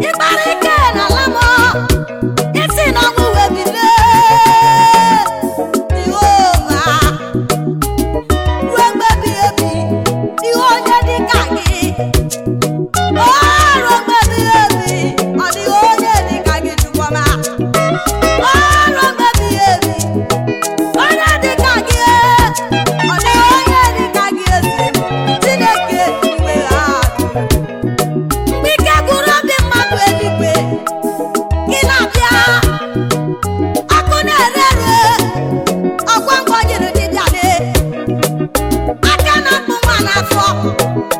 ịkparịta Thank you.